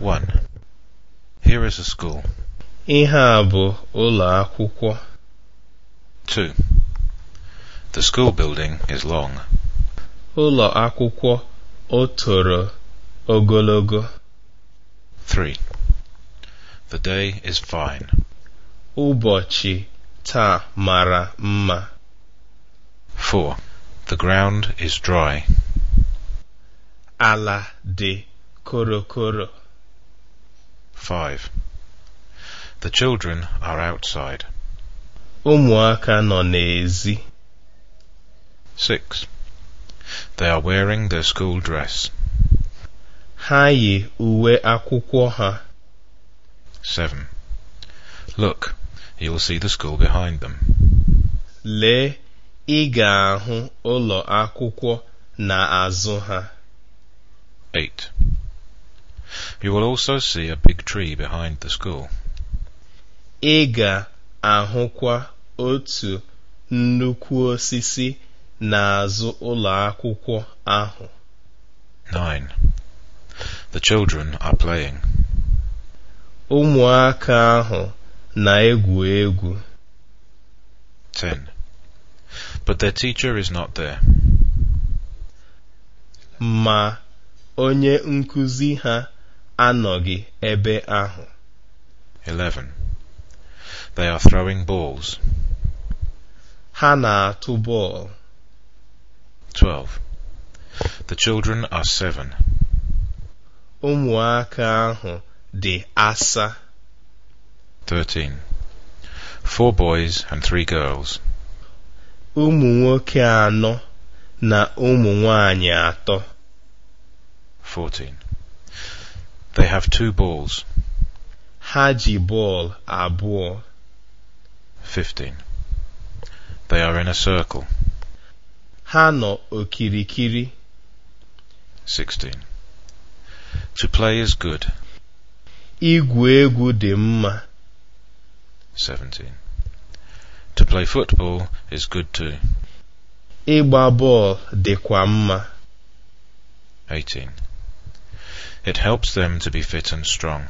1. Here is a school. Ihe a bụ ụlọ akwụkwọ. 2. The school building is long. Ụlọ akwụkwọ o toro ogologo. 3. The day is fine. Ụbọchị taa mara mma. 4. The ground is dry. Ala dị korokoro. 5. The children are outside. Ụmụaka nọ n'èzí. 6. They are wearing their school dress. Ha yi uwe akwụkwọ ha. 7. Look, you will see the school behind them. Lee, ị ga-ahụ ụlọ akwụkwọ n'azụ ha. 8. You will also see a big tree behind the school. Ị ga-ahụkwa otu nnukwu osisi n'azụ ụlọ akwụkwọ ahụ. 9. The children are playing. Ụmụaka ahụ na-egwu egwu. 10. But their teacher is not there. Ma onye nkuzi ha anọghị ebe ahụ 11. They are throwing balls. ha na-atụ bọọlụ 12. The children are seven. ụmụaka ahụ dị asa 13. Four boys and three girls. ụmụ nwoke anọ na ụmụ nwanyị atọ 14. They have two balls. Ha ji ball abụọ. 15. They are in a circle. Ha nọ okirikiri. 16. To play is good. Igwu egwu dị mma. 17. To play football is good too. Ịgba bọọlụ kwa mma. 18. It helps them to be fit and strong.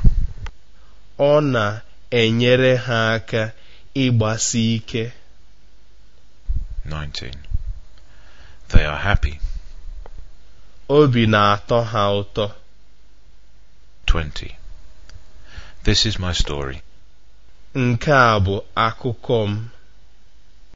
Ọ na-enyere ha aka ịgbasi ike. 19. They are happy. Obi na-atọ ha ụtọ. 20. This is my story. Nke a bụ akụkọ m.